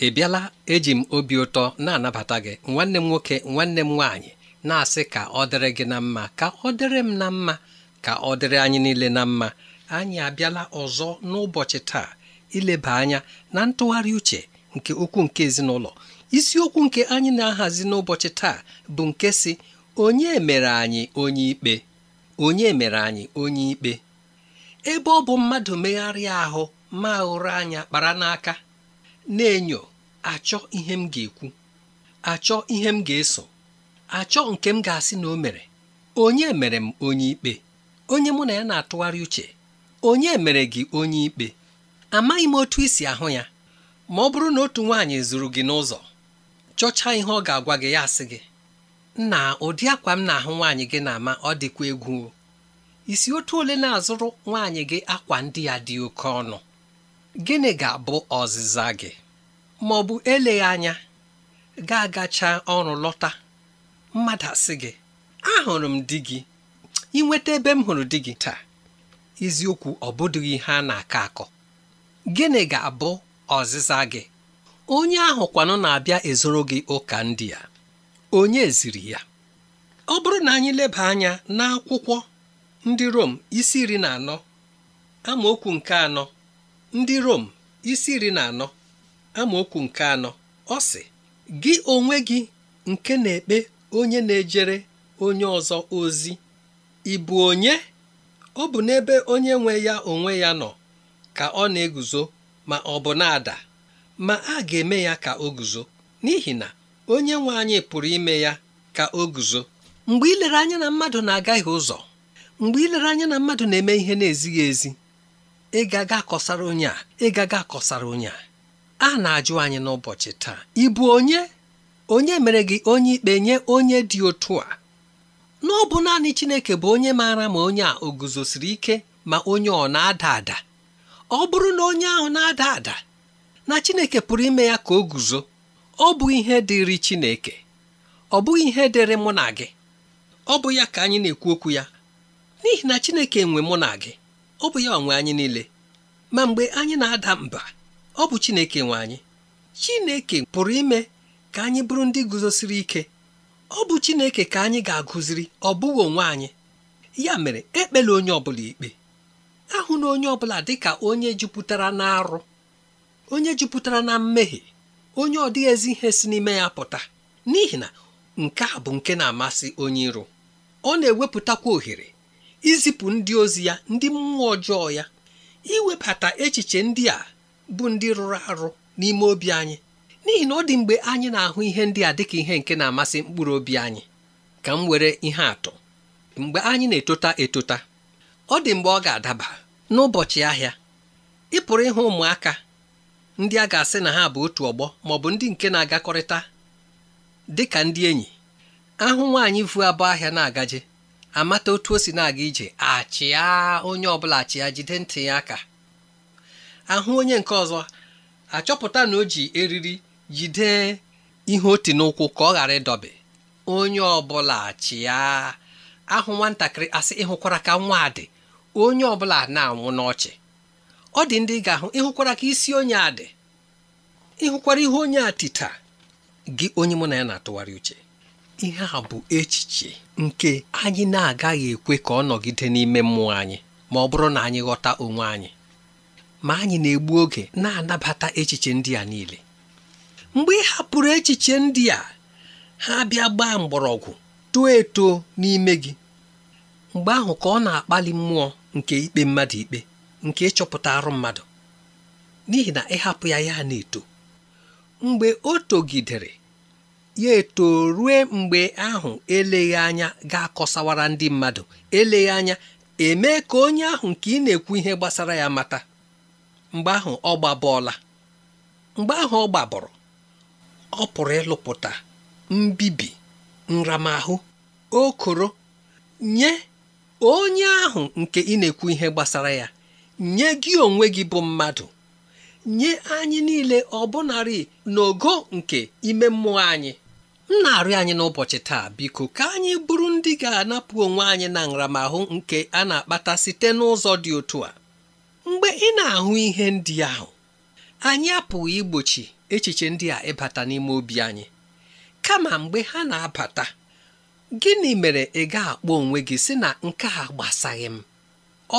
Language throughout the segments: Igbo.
ị bịala eji m obi ụtọ na-anabata gị nwanne m nwoke nwanne m nwaanyị na-asị ka ọ dịrị gị na mma ka ọ dịrị m na mma ka ọ dịrị anyị niile na mma anyị abịala ọzọ n'ụbọchị taa ileba anya na ntụgharị uche nke okwu nke ezinụlọ isiokwu nke anyị na-ahazi n'ụbọchị taa bụ nke si onye mere anyị onye ikpe onye mere anyị onye ikpe ebe ọ bụ mmadụ megharịa ahụ ma anya kpara n'aka na-enyo achọ ihe m ga-ekwu achọ ihe m ga-eso achọ nke m ga-asị na o mere onye mere m onye ikpe onye mụ na ya na-atụgharị uche onye mere gị onye ikpe amaghị m otu isi ahụ ya ma ọ bụrụ na otu nwaanyị zuru gị n'ụzọ chọcha ihe ọ ga-agwa gị ya asị gị na ụdị akwa m na-ahụ nwaanyị gị na-ama ọ dịkwa egwu isi otu ole na-azụrụ nwaanyị gị akwa ndị ya dị oke ọnụ gịnị ga-abụ ọzịza gị ma ọ bụ eleghị anya ga-agacha ọrụ lọta mmadụ asị gị ahụrụ m di gị inweta ebe m hụrụ di gị taa eziokwu ọ bụdịghị na-akọ akọ gịnị ga-abụ ọzịza gị onye ahụ kwanụ na-abịa ezoro gị ụka ndị ya. onye ziri ya ọ bụrụ na anyị leba anya n'akwụkwọ ndị Rom isi iri na anọ amaokwu nke anọ ndị Rom isi iri na anọ amaokwu nke anọ ọ sị gị onwe gị nke na-ekpe onye na-ejere onye ọzọ ozi ị bụ onye ọ bụ n'ebe onye nwe ya onwe ya nọ ka ọ na-eguzo ma ọ bụ na-ada ma a ga-eme ya ka o guzo n'ihi na onye nwe anyị pụrụ ime ya ka o guzo mgbe ilere anya na mmadụ na-agaghị ụzọ mgbe ilere anya na mmadụ na-eme ihe na-ezighị ezi ịgaga akọsara onye a ịgaga akọsara onye a a na-ajụ anyị n'ụbọchị taa ị bụ onye onye mere gị onye ikpe nye onye dị otu a na ọ bụ naanị Chineke bụ onye maara ma onye a o guzosiri ike ma onye ọ na-ada ada ọ bụrụ na onye ahụ na-ada ada na Chineke pụrụ ime ya ka o guzo ọ bụ ihe dịrị Chineke ọ bụghị ihe dịrị mụ na gị ọ bụ ya ka anyị na-ekwu okwu ya n'ihi na Chineke nwe mụ na gị ọ bụ ya nwe anyị niile ma mgbe anyị na-ada mba ọ bụ Chineke nwe anyị Chineke pụrụ ime ka anyị bụrụ ndị guzosiri ike ọ bụ Chineke ka anyị ga-agụziri ọ bụghị onwe anyị ya mere ekpela onye ọbụla ikpe ahụ na onye ọbụla dị ka onye jupụtara na arụ onye jupụtara na mmehie onye ọ dịghị ezi ihe si n'ime ya pụta n'ihi na nke a bụ nke na-amasị onye iro ọ na-ewepụtakwa ohere izipụ ndị ozi ya ndị mmụọ ọjọọ ya iwebata echiche ndị a bụ ndị rụrụ arụ n'ime obi anyị n'ihi na ọ dị mgbe anyị na-ahụ ihe ndị a dịka ihe nke na-amasị mkpụrụ obi anyị ka m were ihe atụ mgbe anyị na-etota etota ọ dị mgbe ọ ga-adaba n'ụbọchị ahịa ị pụrụ ịhụ ụmụaka ndị a ga-asị na ha bụ otu ọgbọ ma ọ bụ ndị nke na-agakọrịta dị ka ndị enyi ahụ nwaanyị vu abụọ ahịa na-agaje amata otu o si na-aga ije achịa onye ọbụla achịa jide ntị ya aka ahụ onye nke ọzọ achọpụta na o ji eriri jide ihe oti n'ụkwụ ka ọ ghara ịdọbe onye ọbụla chịa ahụ nwatakịrị asị ịhụkwara ka nwa dị onye ọbụla na-anwụ n'ọchị ọ dị ndị ga-ahụ ịhụkwara ka isi onye a dị ịhụkwara ihe onye a tita gị onye mụ na ya na-atụgharị uche ihe a bụ echiche nke anyị na-agaghị ekwe ka ọ nọgide n'ime mmụọ anyị ma ọ bụrụ na anyị ghọta onwe anyị ma anyị na-egbu oge na-anabata echiche ndị a niile mgbe ị hapụrụ echiche ndị a ha bịa gbaa mgbọrọgwụ too eto n'ime gị mgbe ahụ ka ọ na-akpali mmụọ nke ikpe mmadụ ikpe nke ịchọpụta arụ mmadụ n'ihi na ịhapụ ya ya na-eto mgbe o togidere ya eto ruo mgbe ahụ eleghị anya ga-akọsawara ndị mmadụ eleghị anya emee ka onye ahụ nke ị na-ekwu ihe gbasara ya mata mgbe ahụ ọ gbabọọla mgbe ahụ ọ gbabọrọ ọ pụrụ ịlụpụta mbibi nramahụ okoro nye onye ahụ nke ị na-ekwu ihe gbasara ya nye gị onwe gị bụ mmadụ nye anyị niile narị ọ na ogo nke ime mmụọ anyị m na-arịọ anyị n'ụbọchị taa biko ka anyị bụrụ ndị ga-anapụ onwe anyị na nramahụ nke a na-akpata site n'ụzọ dị otu a mgbe ị na-ahụ ihe ndị ahụ anyị apụghị igbochi echiche ndị a ịbata n'ime obi anyị kama mgbe ha na-abata gịnị mere ị ga-akpọ onwe gị sị na nke a gbasaghị m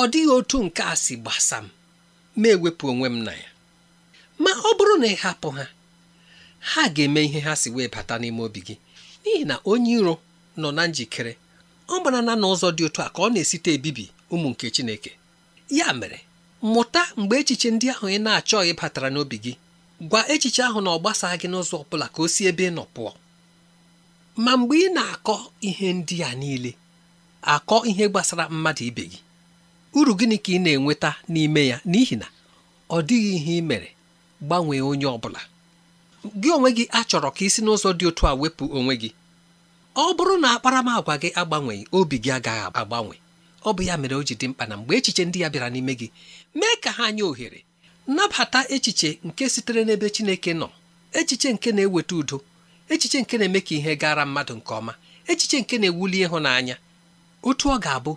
ọ dịghị otu nke a si gbasa m ma ewepụ onwe m na ya ma ọ bụrụ na ị hapụ ha ha ga-eme ihe ha si wee bata n'ime obi gị n'ihi na onye iro nọ na njikere ọ gbara na n'ụzọ dị otu a ka ọ na-esite ebibi ụmụ nke Chineke ya mere mụta mgbe echiche ndị ahụ ị na-achọghị batara n'obi gị gwa echiche ahụ na ọ gbasaa gị n'ụzọ ọ bụla ka o si ebe ị nọ pụọ ma mgbe ị na-akọ ihe ndị a niile akọ ihe gbasara mmadụ ibe gị uru gịnị ka ị na-enweta n'ime ya n'ihi na ọ dịghị ihe ị mere gbanwee onye ọ bụla gị onwe gị achọrọ ka isi n'ụzọ dị otu a wepụ onwe gị ọ bụrụ na akparamagwa gị agbanweghị obi gị agaghị agbanwe ọ bụ ya mere o ji dị mkpa na mgbe echiche ndị ya bịara n'ime gị mee ka ha nye ohere nabata echiche nke sitere n'ebe Chineke nọ echiche nke na-eweta udo echiche nke na-eme ka ihe gara mmadụ nke ọma echiche nke na-ewuli ịhụnanya otu ọ ga-abụ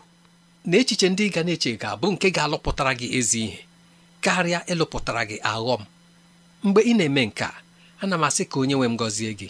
na echiche ndị ga na-eche ga-abụ nke ga-alụpụtara gị ezi ihe karịa ịlụpụtara gị aghọm mgbe ị na-eme nke a ana m asị ka onye nwe m gọzie gị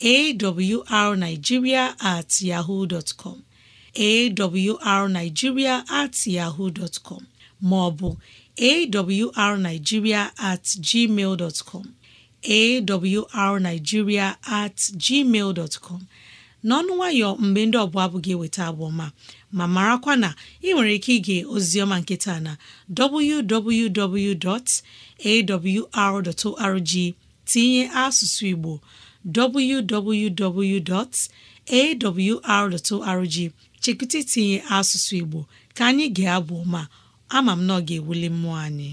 awrnigeria at yahoo dot com awrnigeria at yahoo dot maọbụ awrnigeria at gmail dot com awrnigeria at gmail dot n'ọnụ nwayọ mgbe ndị ọbụla abụghị eweta abụ ma marakwa na ị nwere ike ige ozioma nkịta na www.awr.org tinye asụsụ Igbo www.awr.org chekwụta itinye asụsụ Igbo ka anyị ga-abụ ma ama m na ọ ga-ewuli mmụọ anyị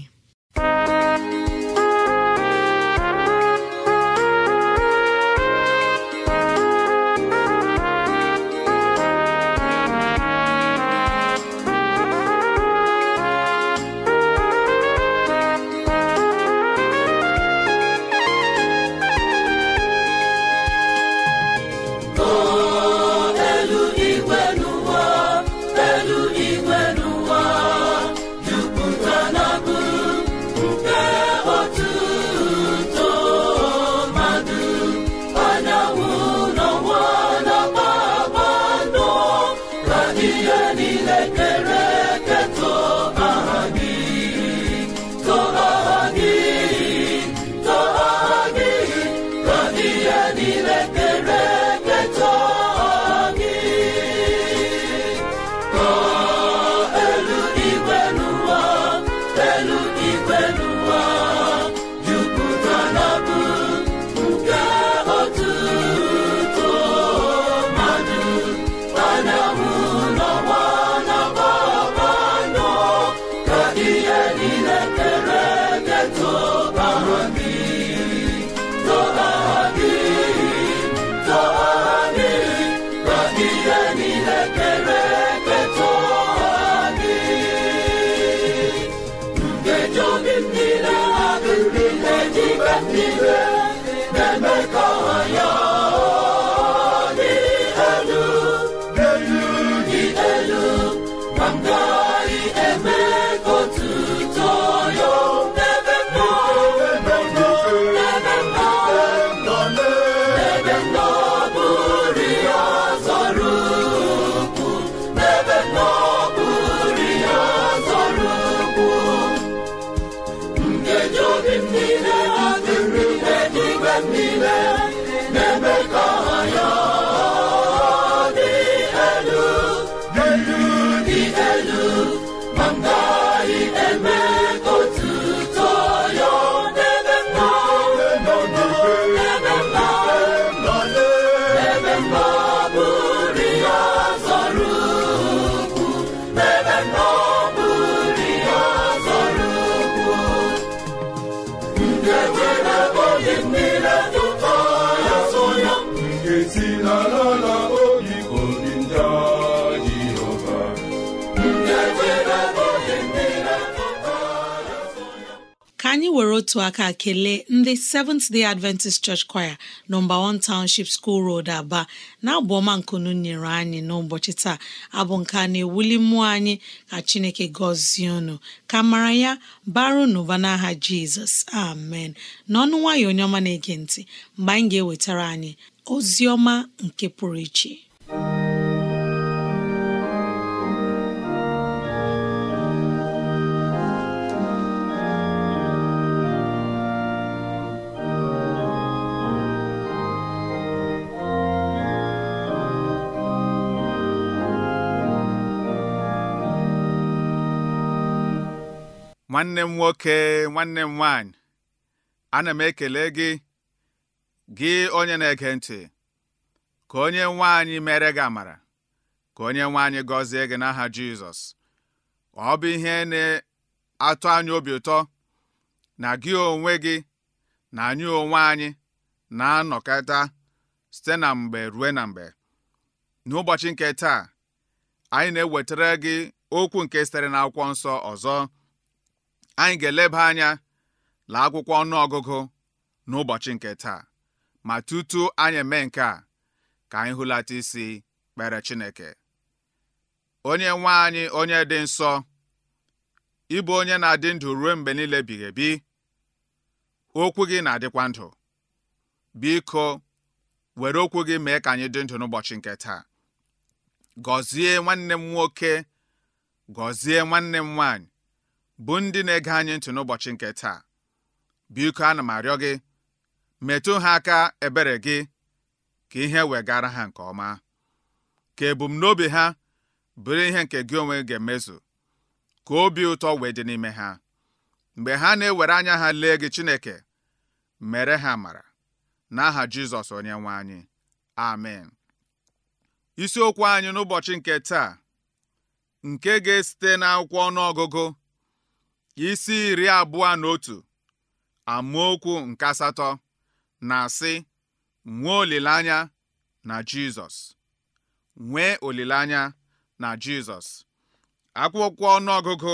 niile kere otu aka kelee ndị Seventh Day Adventist Church Choir nọmba 1 Township School Road Aba na-abụ ọma nkunu nyere anyị n'ụbọchị taa abụ nke a na-ewuli mmụọ anyị ka Chineke gọzie unu ka mara ya baru n'ụba n'aha Jizọs amen n'ọnụ nwayọ onye ọma na-ege ntị mgbe anyị ga-ewetara anyị ozi ọma nke pụrụ iche nwanne m nwoke nwanne m nwanyị ana m ekele gị gị onye na-ege ntị ka onye nwaanyị mere gị amara ka onye nwaanyị gọzie gị n'aha Jizọs ọ bụ ihe na atụ anya obi ụtọ na gị onwe gị na anyị onwe anyị na-anọkọta site na mgbe ruo na mgbe n'ụbọchị nke taa anyị na-ewetara gị okwu nke sitere n'akwụkwọ nsọ ọzọ anyị ga-eleba anya laa akwụkwọ ọnụ ọgụgụ n'ụbọchị nke taa ma tutu anyị eme nke a ka anyị hụlata isi kpere Chineke onye nwe anyị onye dị nsọ ịbụ onye na-adị ndụ ruo mgbe niile bighị bi okwu gị na-adịkwa ndụ biko were okwu gị mee ka anyị dị ndụ n'ụbọchị nke taa gọzie nwanne m nwoke gọzie nwanne m nwaanyị bụ ndị na-ege anyị ntụ n'ụbọchị nke taa biko ana m arịọ gị metụ ha aka ebere gị ka ihe wegara ha nke ọma ka ebumnobi ha bụrụ ihe nke gị onwe ga-emezu ka obi ụtọ wee dị n'ime ha mgbe ha na-ewere anya ha lee gị Chineke mere ha mara n'aha Jizọs onye anyị amen isiokwu anyị n'ụbọchị nke taa nke ga-esite n'akwụkwọ ọnụọgụgụ isi iri abụọ na otu amaokwu nke asatọ na-asị nwee olileanya na Jizọs nwee olileanya na Jizọs akwụkwọ ọnụọgụgụ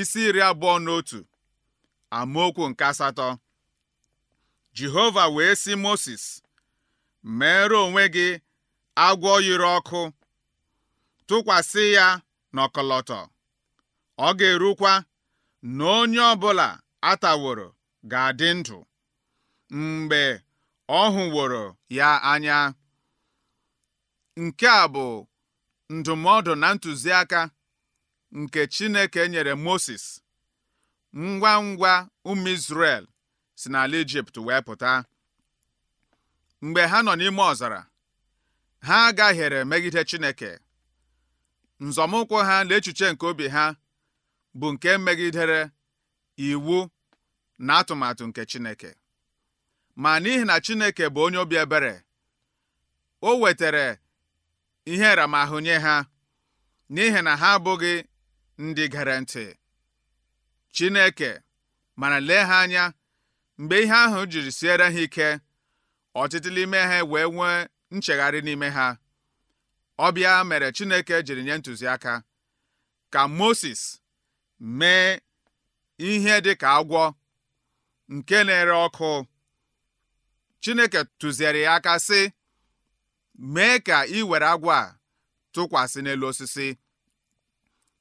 isi iri abụọ na otu amaokwu nke asatọ Jehova wee sị Mosis mere onwe gị agwọ yiri ọkụ tụkwasị ya n'ọkọlọtọ ọ ga-erukwa na onye ọbụla taworo ga-adị ndụ mgbe ọ hụworo ya anya nke a bụ ndụmọdụ na ntụziaka nke Chineke nyere Moses ngwa ngwa ụmụ Izrel si n'ala Ijipt wee pụta mgbe ha nọ n'ime ọzara ha agahiere megide Chineke nzọmụkwụ ha na echiche nke obi ha bụ nke megidere iwu na atụmatụ nke Chineke ma n'ihi na Chineke bụ onye obi ebere o wetara ihe nramahụ nye ha n'ihi na ha abụghị ndị gara ntị Chineke mana lee ha anya mgbe ihe ahụ jiri siere ha ike ọtịtị n'ime ha wee nwee nchegharị n'ime ha ọbịa mere Chineke jiri nye ntụziaka ka Moses mee ihe dị ka agwọ nke na-ere ọkụ Chineke tụziere ya aka sị mee ka ị were agwọ a tụkwasị n'elu osisi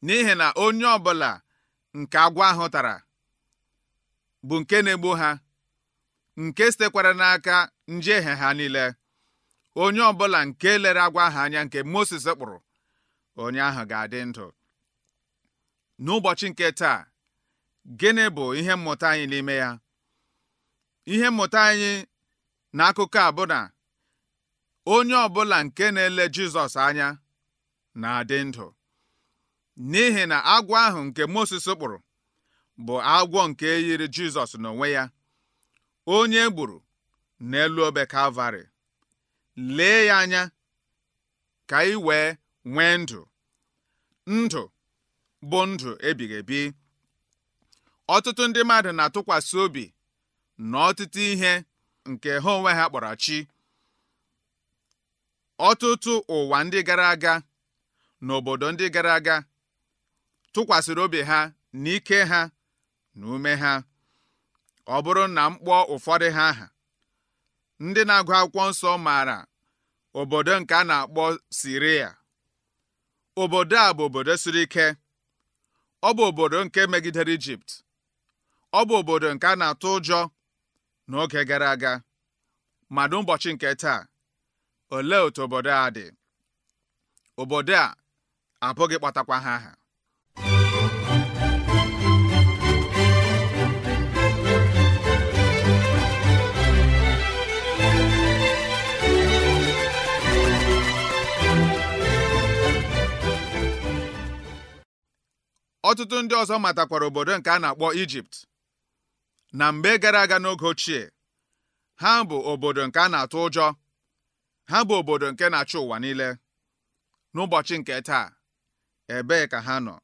n'ihi na onye ọbụla nke agwọ ahụ tara bụ nke na-egbu ha nke sitekwara n'aka njehie ha niile onye ọbụla nke lere agwọ ahụ anya nke Moses kpụrụ onye ahụ ga-adị ndụ n'ụbọchị nke taa gịnị bụ ihe mmụta anyị n'ime ya ihe mmụta anyị na akụkọ a bụ na onye ọbụla nke na-ele Jizọs anya na-adị ndụ n'ihi na agwọ ahụ nke Moses kpụrụ bụ agwọ nke yiri Jizọs n'onwe ya onye e gburu n'elu obe Kalvarị lee ya anya ka ị wee nwee ndụ ndụ bụ ndụ ebighị ebi ọtụtụ ndị mmadụ na-atụkwasị obi na ọtụtụ ihe nke ha onwe ha kpọrọ chi ọtụtụ ụwa ndị gara aga na obodo ndị gara aga tụkwasịrị obi ha na ike ha na ume ha ọ bụrụ na m kpọọ ụfọdụ ha aha ndị na-agụ akwụkwọ nsọ maara obodo nke a na-akpọ Siria obodo a bụ obodo siri ike ọ bụ obodo nke megidere Ijipt ọ bụ obodo nke a na-atụ ụjọ n'oge gara aga ma n'ụbọchị nke taa olee otu obodo a dị obodo a abụghị kpatakwa ha aha ọtụtụ ndị ọzọ matakwara obodo nke a na-akpọ Ijipt na mgbe gara aga n'oge ochie ha bụ obodo nke a na-atụ ụjọ ha bụ obodo nke na-achị ụwa niile n'ụbọchị nke taa ebee ka ha nọ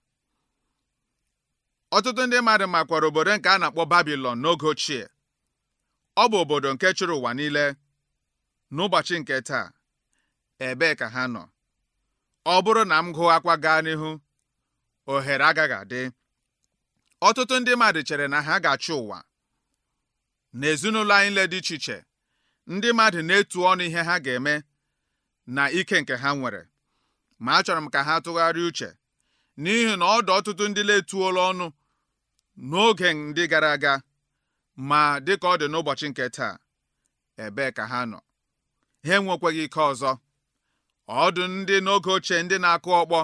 ọtụtụ ndị mmadụ makwara obodo nke a na-akpọ Babilọn n'oge ochie ọ bụ obodo nke chịrị ụwa niile n'ụbọchị nke taa ebee ka ha nọ ọ bụrụ na m gụọ akwa gaa n'ihu ohere agaghị adị ọtụtụ ndị mmadụ chere na ha ga-achị ụwa na ezinụlọ anyị niile dị iche iche ndị mmadụ na-etu ọnụ ihe ha ga-eme na ike nke ha nwere ma achọrọ m ka ha tụgharịa uche n'ihi na ọdụ ọtụtụ ndị na-etuola ọnụ n'oge ndị gara aga ma dịka ọ dị n'ụbọchị nke taa ebee ka ha nọ ha enwekweghị ike ọzọ ọdụ ndị n'oge ochie ndị na-akụ ọkpọ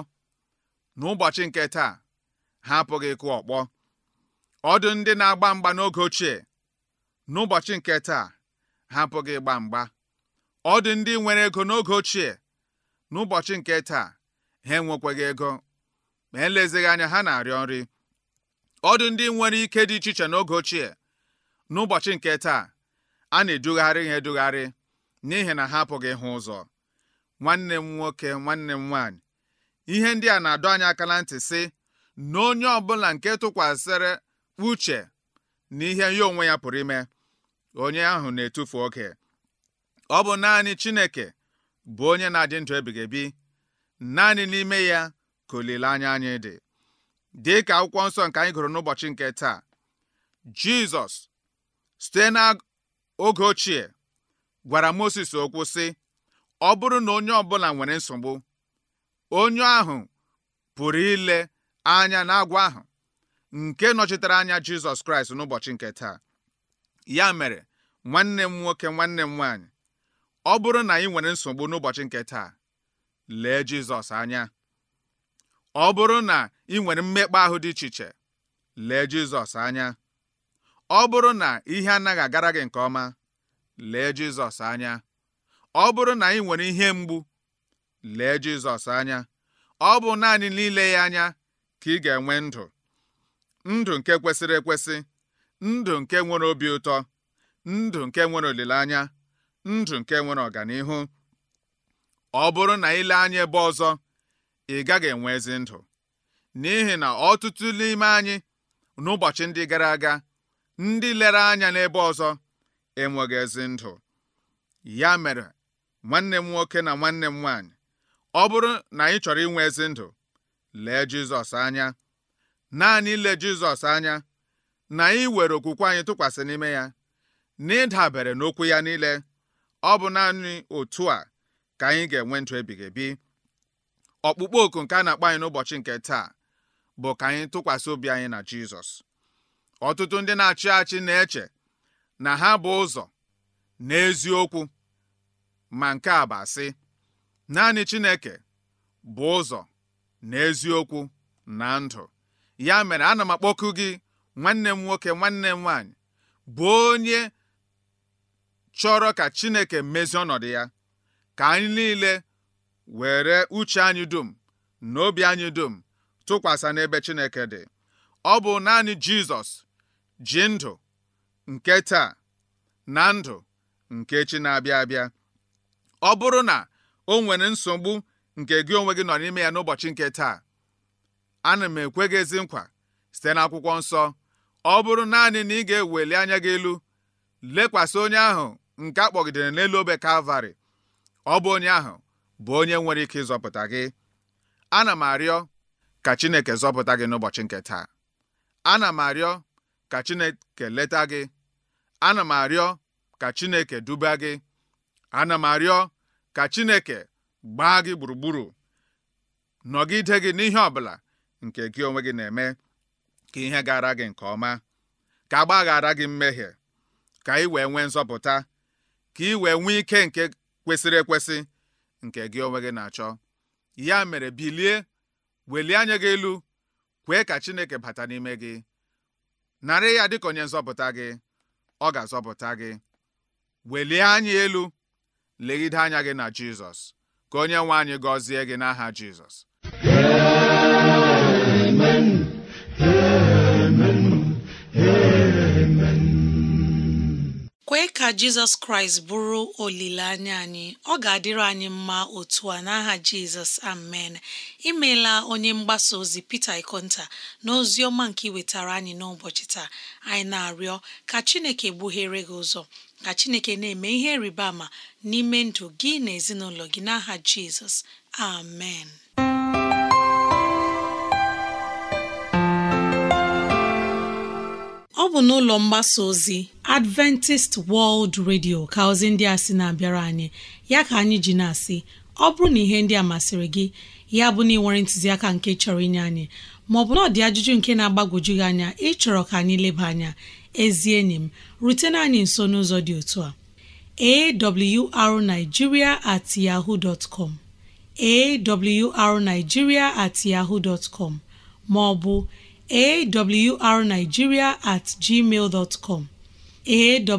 n'ụbọchị nke taa ha apụghị ịkụ ọkpọ ọdụ ndị na-agba mgba n'oge ochie n'ụbọchị nke taa ha apụghị ịgba mgba ọdụ ndị nwere ego n'oge ochie n'ụbọchị nke taa ha enwekwaghị ego ma elezighị anya ha na-arịọ nri ọdụ ndị nwere ike dị iche iche n'oge ochie n'ụbọchị nke taa a na-edugharị ha edugharị n'ihi na ha apụghị ịhụ ụzọ nwanne m nwoke nwanne m nwaanyị ihe ndị a na-adọ anyị aka na ntị sị na onye ọbụla nke tụkwasịrị uche na ihe ya onwe ya pụrụ ime onye ahụ na-etufu oge ọ bụ naanị Chineke bụ onye na-adị ndụ ebighị ebi naanị n'ime ya ka olileanya anyị dị dị ka akwụkwọ nsọ nke anyị gụrụ n'ụbọchị nke taa Jizọs site n'oge ochie gwara Moses okwu sị ọ bụrụ na onye ọbụla nwere nsogbu onye ahụ pụrụ ile anya n'agwa ahụ nke nọchitere anya Jizọs Kraịst n'ụbọchị nke taa ya mere nwanne m nwoke nwanne m nwaanyị ọ bụrụ na ị nwere nsogbu n'ụbọchị nke taa lee Jizọs anya ọ bụrụ na ị nwere mmekpa ahụ dị iche iche lee Jizọs anya ọ bụrụ na ihe anaghị agara gị nke ọma lee Jizọs anya ọ bụrụ na ị nwere ihe mgbu lee Jizọs anya ọ bụ naanị n'ile ya anya ka ị ga-enwe ndụ ndụ nke kwesịrị ekwesị ndụ nke nwere obi ụtọ ndụ nke nwere olileanya ndụ nke nwere ọganihu ọ bụrụ na ile anya ebe ọzọ ị gaghị enwe ezi ndụ n'ihi na ọtụtụ n'ime anyị n'ụbọchị ndị gara aga ndị lere anya n'ebe ọzọ enweghị ezi ndụ ya mere nwanne m nwoke na nwanne m nwaanyị ọ bụrụ na anyị chọrọ inwe ezi ndụ lee Jizọs anya naanị ile Jizọs anya na anyị were okwukwe anyị tụkwasị n'ime ya na ịdabere n'okwu ya niile ọ bụ naanị otu a ka anyị ga-enwe ndụ ebighị ebi ọkpụkpọ oku nke a na-akpọ anyị n'ụbọchị nke taa bụ ka anyị tụkwasị obi anyị na Jizọs ọtụtụ ndị na-achị achị na-eche na ha bụ ụzọ na eziokwu ma nke a bụ asị naanị Chineke bụ ụzọ na eziokwu na ndụ ya mere ana m akpọku gị nwanne m nwoke nwanne m nwaanyị bụ onye chọrọ ka Chineke mezie ọnọdụ ya ka anyị niile were uche anyị dum na obi anyị dum tụkwasị n'ebe Chineke dị ọ bụ naanị Jizọs ji ndụ nke taa na ndụ nke chi na-abịa abịa ọ bụrụ na o nwere nsogbu nke gị onwe gị nọ n'ime ya n'ụbọchị nke taa ana m ekwe gị ezi nkwa site n'akwụkwọ nsọ ọ bụrụ naanị na ị ga-eweli anya gị elu lekwasị onye ahụ nke akpọgidere n'elu obe kalvarị ọ bụ onye ahụ bụ onye nwere ike ịzọpụta gị ana m arịọ ka Chineke zọpụta gị n'ụbọchị nke taa ana m arịọ ka Chineke leta gị ana m arịọ ka Chineke duba gị ana m arịọ ka Chineke gbaa gị gburugburu nọgide gị n'ihe ọbụla nke gị onwe gị na-eme ka ihe gara gị nke ọma ka a gbaghara gị mmehie ka ị wee nwee nzọpụta ka ị wee nwee ike nke kwesịrị ekwesị nke gị onwe gị na-achọ ya mere bilie welie anya gị elu kwee ka Chineke bata n'ime gị narị ya dịka onye nzọpụta gị ọ ga-azọpụta gị welie anya elu legide anya gị na Jizọs ka onye nwe anyị gọzie gị n'aha Jizọs amen amen amen kwee ka Jizọs Kraịst bụrụ olileanya anyị ọ ga-adịrị anyị mma otu a n'aha Jizọs amen imeela onye mgbasa ozi Peter Ikonta na ozi ọma nke iwetara anyị n'ụbọchị taa anyị na-arịọ ka Chineke gbughere gị ụzọ ka chineke na-eme ihe rịba ama n'ime ndụ gị na ezinụlọ gị n'aha jizọs amen ọ bụ n'ụlọ mgbasa ozi Adventist World Radio ka ozi ndị a si na-abịara anyị ya ka anyị ji na-asị ọ bụrụ na ihe ndị a masịrị gị ya bụ na ị nwere ntụziaka nke chọrọ inye anyị maọbụ na ọ dị ajụjụ nke na-agbagwoju gị anya ịchọrọ ka anyị leba anya ezi enyi m rutena anyị nso n'ụzọ dị otu a awrnigeria at yahoo dot com awrnigeria at yahoo dot com ma awrnigeria at gmail dot com at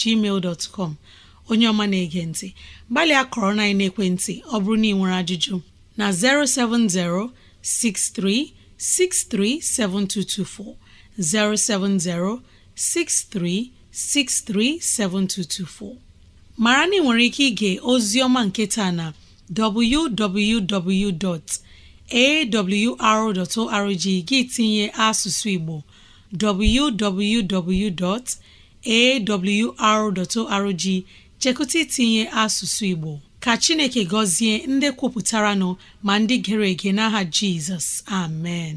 gmail dot com onye ọma na-ege ntị gbalịa na ekwentị ọ bụrụ na ị nwere ajụjụ na 070 63 7224 070 mara na ị nwere ike ige ozioma nketa na www.awr.org gị tinye asụsụ Igbo www.awr.org chekụta itinye asụsụ Igbo ka Chineke gọzie ndị kwupụtara nọ ma ndị gere ege n'aha Jizọs amen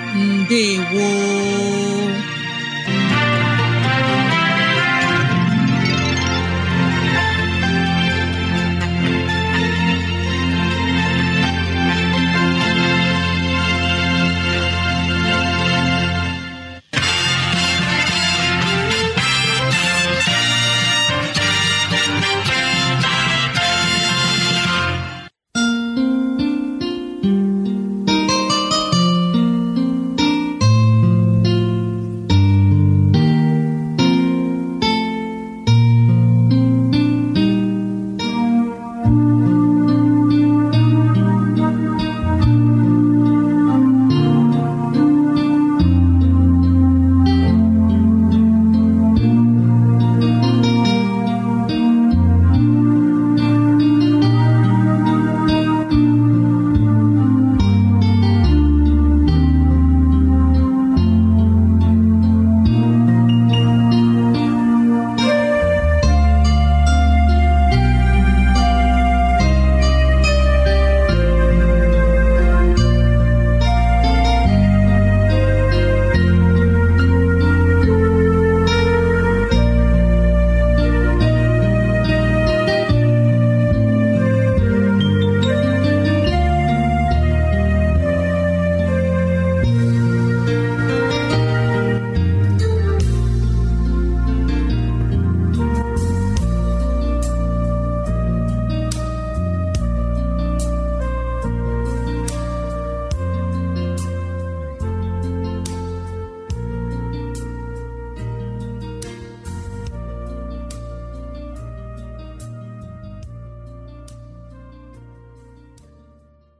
ndewo